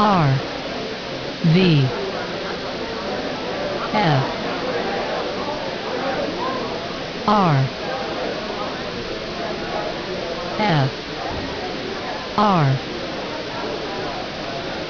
R V F R F R